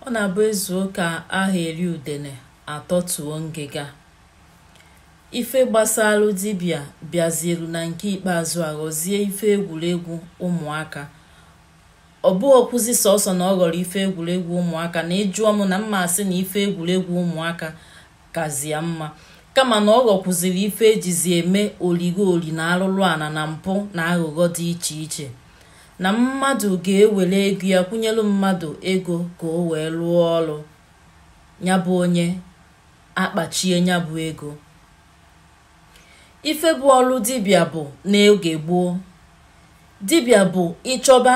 ọ na-abụ ezu ụka ahụ eri udene atọtuo ngịga ife gbasalụ dibịa bịazieru na nke ikpeazụ aghọzie ife egwuregwu ụmụaka ọ bụghọkwụzi sọsọ na ọ ghọrọ ife egwuregwu ụmụaka na ịjụọ m na mmasị asị na ife egwuregwu ụmụaka kazie mma kama na ọ ghọkwuziri ife ejizi eme oligo oli na arụrụ ala na mpụ na aghụghọ dị iche iche na mmadụ ga-ewere ego ya kwụnyelu mmadụ ego ka o wee rụọ ọrụ ya bụ onye akpachie ya bụ ego ife bụ ọrụ dibịa bụ n'oge gboo dibịa bụ ịchọba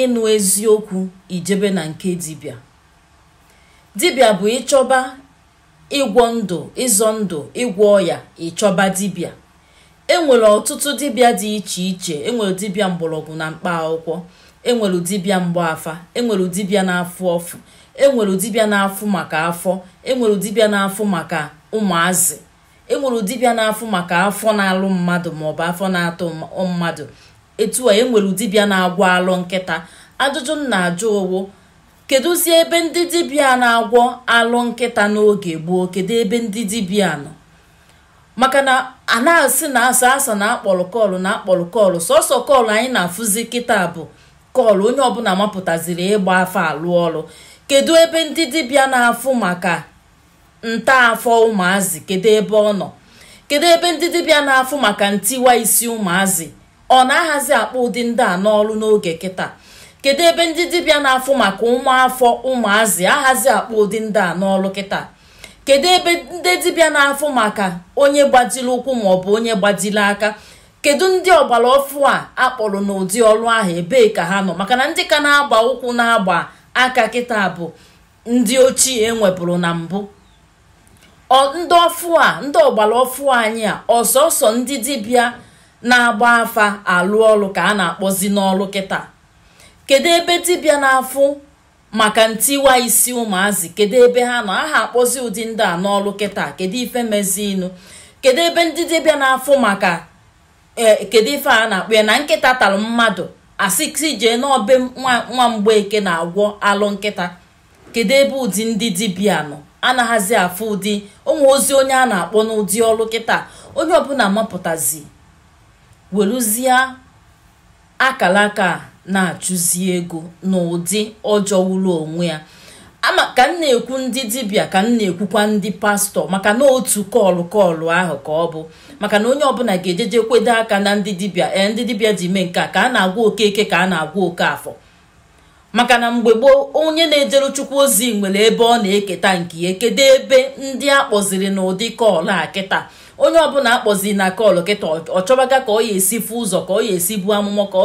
ịnụ eziokwu ijebe na nke dibịa dibịa bụ ịchọba ịgwọ ndụ ịzọ ndụ ịgwọ ọya ịchọba dibịa enwere ọtụtụ dibịa dị iche iche enwere dibịa mgbọrọgwụ na mkpa akwụkwọ enwere dibịa mgbafa enwere dibịa na-afụ ọfụ enwere dibịa na-afụ maka afọ enwere dibịa na-afụ maka ụmụazị enwere dibịa na-afụ maka afọ na-alụ mmadụ maọbụ afọ na-atụ mmadụ etu a enwere dibịa na-agwọ alụ nkịta ajụjụ m na-ajụ owo kedụzi ebe ndị dibịa na-agwọ alụ nkịta n'oge gboo kedu ebe ndị dibịa nọ maka na a na-asị na asa asa na akpọrọ kọlụ na akpọrọ kọlụ sọsọ kọlụ anyị na-afụzi kịta bụ kọlụ onye ọbụla mapụtaziri ịgba afọ alụ ọrụ kedu ebe ndị dibịa na-afụ maka ntaafọ ụmụazị kedu ebe ọ nọ kedu ebe ndị dibịa na-afụ maka ntiwa isi ụmụazị ọ na-ahazi akpa ụdị ndị a n'ọrụ n'oge kịta kedu ebe ndị dibịa na-afụ maka ụmụafọ ụmụazị ahazi akpa ụdị ndị a n'ọrụ kịta kedu ebe ndị dibịa na-afụ maka onye gbajiri ụkwụ maọbụ onye gbajiri aka kedu ndị ọgbara ọfụ a akpọrọ n'ụdị ọrụ ahụ ebee ka ha nọ maka na ndị ka na-agba ụkwụ na-agba aka kịta bụ ndị ochie e nwepụrụ na mbụ ndị ọfụ a ndị ọgbara ọfụ anyị a ọsọsọ ndị dibịa na-agba afa alụ ọrụ ka a na-akpọzi n'ọrụ kịta kedu ebe dibịa na-afụ maka ntiwa isi ụmụazị kedu ebe ha nọ aha akpọzi ụdị ndị a n'ọlụ kịta kedu ife mezinu kedu ebe ndị dibịa na-afụ maka e, kedu ife a na-akpọ ya na nkịta tara mmadụ asịsị jee n'obe nwa eke na-agwọ alụ nkịta kedu ebe ụdị ndị dibịa nọ anaghazi afụ ụdị onwe ozi onye a na-akpọ n'ụdị ọlụ kịta onye ọbụla mapụtazi weruzie akara aka na-achụzi ego n'ụdị ọjọwụrụ onwe ya ka m na-ekwu ndị dibịa ka m na-ekwukwa ndị pastọ maka na otu kọlụ kọlụ ahụ ka ọ bụ maka na onye ọbụla ga-ejeje kwedo aka na ndị dibịa ee eh, ndị dibịa ji mee nke a ka a na-agwa okeke ka a na-agwa oke afọ maka na mgbe gboo onye na-ejere chukwu ozi nwere ebe ọ na-eketa nke ya e kedu ebe ndị a kpọziri n'ụdị kọlụ a kịta onye ọbụla akpọzi na kọl kịta ọ chọbaga ka ọ ya esi fu ụzọ ka ọ ya esi bu amụmụ ka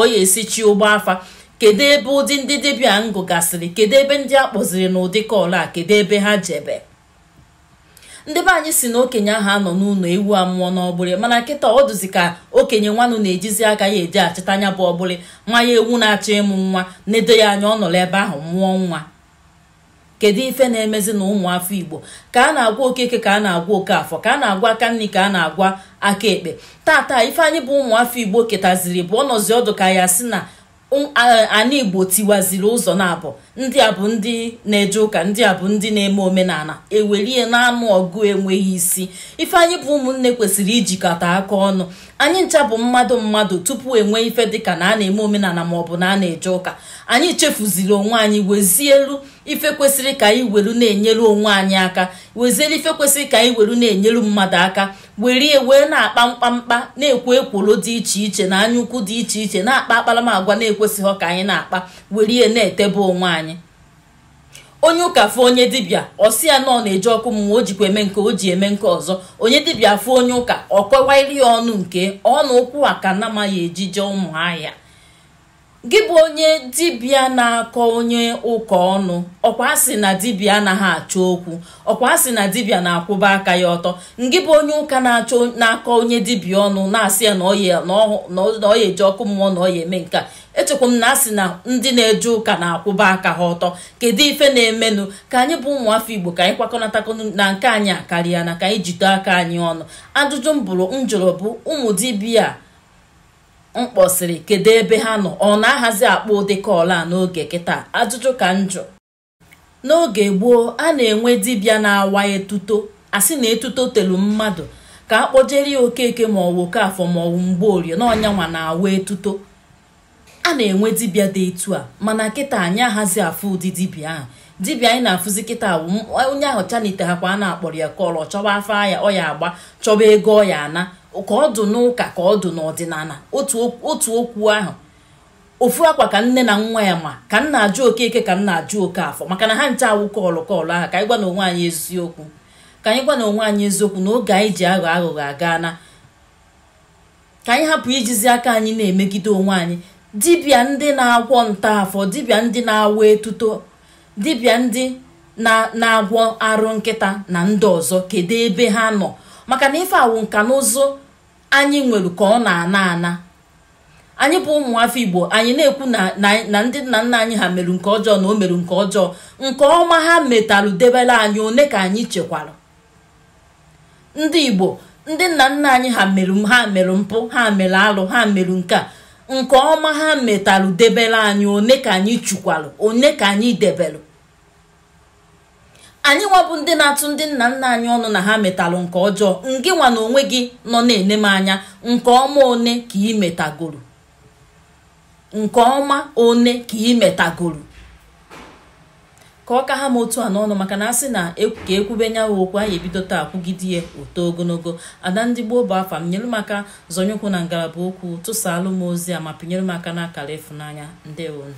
ọ ya esi chi ụgbọ afa kedu ebe ụdị ndị dibịa ngụ gasịrị kedu ebe ndị a kpọziri n'ụdị kọl a kedu ebe ha jebe ndị be anyị si na okenye ahụ anọ n'ụlọ ewu amụọ n'ọgbụrị mana nkịta ọ dụzi ka okenye nwanụ na-ejizi aka ya eji achịta anya bụ ọgbụrị nwa ya ewu na-achọ ịmụ nwa na-edo ya anya ọ nọrọ ebe ahụ mụọ nwa kedu ife na-emezi na ụmụ afọ igbo ka a na-agwa okeke ka a na-agwa oke afọ ka a na-agwa aka nri ka a na-agwa aka ekpe taataa ife anyị bụ ụmụ afọ igbo ketaziri bụ ọnọzi ọdụ ka ya si na anyị igbo tiwaziri ụzọ na abụ ndị a bụ ndị na-eje ụka ndị a bụ ndị na-eme omenala ewelie na-anụ ọgụ enweghị isi ife anyị bụ ụmụnne kwesịrị ijikọta aka ọnụ anyị ncha bụ mmadụ mmadụ tupu enwee ife dịka na a na-eme omenala maọbụ na a na-eje ụka anyị chefuziri onwe anyị wezielu ife kwesịrị ka anyị weru na-enyere onwe anyị aka wezielu ife kwesịrị ka anyị weru na-enyelu mmadụ aka werie wee na-akpa mkpamkpa na-ekwo ekwolo dị iche iche na anyaukwu dị iche iche na-akpa akparamagwa na-ekwesịghị ka anyị na-akpa were na-etebe onwe anyị onye ụka fụ onye dibịa ọsi ya nọ na-eji ọkụ mmụọ o jikwa eme nke o ji eme nke ọzọ onye dibịa fụ onye ụka ọ kọwairi ya ọnụ nke ọnụ ụkwụ aka na amaghị ejije ụmụ ahịa gị bụ onye dibịa na-akọ onye ụka ọnụ ọkwa sị na dibịa anaghị achọ okwu ọkwa sị na dibịa na-akwụba aka ya ọtọ ngị bụ onye ụka na-achọ na-akọ onye dibịa ọnụ na-asị ya na ọ ya ọkụ mmụọ na ọ ya eme nke a echekwa m na asị na ndị na-eje ụka na-akwụba aka ha ọtọ kedu ife na-emenụ ka anyị bụ ụmụafọ igbo ka anyị kwakọnatakọ na nke anyị akarịa na ka anyị jide aka anyị ọnụ ajụjụ m bụrụ m jụrụ bụ ụmụ dibịa mkpọsịrị kedu ebe ha nọ ọ na-ahazi akpa ụdị a n'oge kịta ajụjụ ka njọ n'oge gboo a na-enwe dibịa na-awa etuto asị na etuto telu mmadụ ka a kpọjere ya okeke ma ọwụ okafọ ma ọwụ mgbe na n'ọnyanwa na-awa etuto a na-enwe dibịa dị etu a mana kịta anyị ahazi afụ ụdị dibịa ahụ dibịa anyị na-afụzi kịta onye ahụ chanite ha kwa a na-akpọrọ ya kọọlụ ọ chọba afọ ya ọ ya agba chọba ego ọ ya ana ka ọ dụ n'ụka ka ọ dụ n'ọdịnala otu okwu ahụ ofu akwa ka nne na nwa ya ma ka nna ajụ okeke ka nna ajụ oke afọ maka na ha nche awụ kọọlụ kọọlụ ahụ ka anyị gwa na onwe anyị eziokwu ka anyị gwa na onwe anyị eziokwu na oge anyị ji aghọ aghụghọ aga na ka anyị hapụ ijizi aka anyị na-emegide onwe anyị dibịa ndị na-agwọ nta afọ, dibịa ndị na-awụ etuto dibịa ndị na-agwọ arụ nkịta na ndị ọzọ kedu ebe ha nọ maka na ife awụ nka na ụzụ anyị nwere ka ọ na-ana ana anyị bụ ụmụ igbo anyị na-ekwu na ndị nna nna anyị ha merụ nke ọjọọ na o mere nke ọjọọ nke ọma ha metalụ debere anyị one ka anyị chekwara ndị igbo ndị nna nna anyị ha meru ha merụ mpụ ha mere alụ ha merụ nke a nke ọma ha metalụ debere anyị one ka anyị chukwarụ one ka anyị debelụ anyị nwabụ ndị na-atụ ndị nna nna anyị ọnụ na ha metalụ nke ọjọọ ngị nwa na onwe gị nọ na-ene m anya nke ọma one ka ị metagoro nke ọma one ka ị metagoro ka ọ ka ha m otu a n'ọnụ maka na asị na e, ka ekwube nyawa okwu anyị ebido taa kwugide ya oto ogologo ada ndị gboo bụ afa m nyere m aka zọnyekwu na ngalaba okwu tụsaalụ m ozi a ma pinyere m aka na-akara ịfụnanya ndewonu